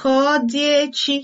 Ka ọ dị echi.